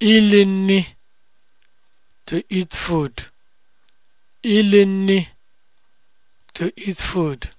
ilinni to to eat food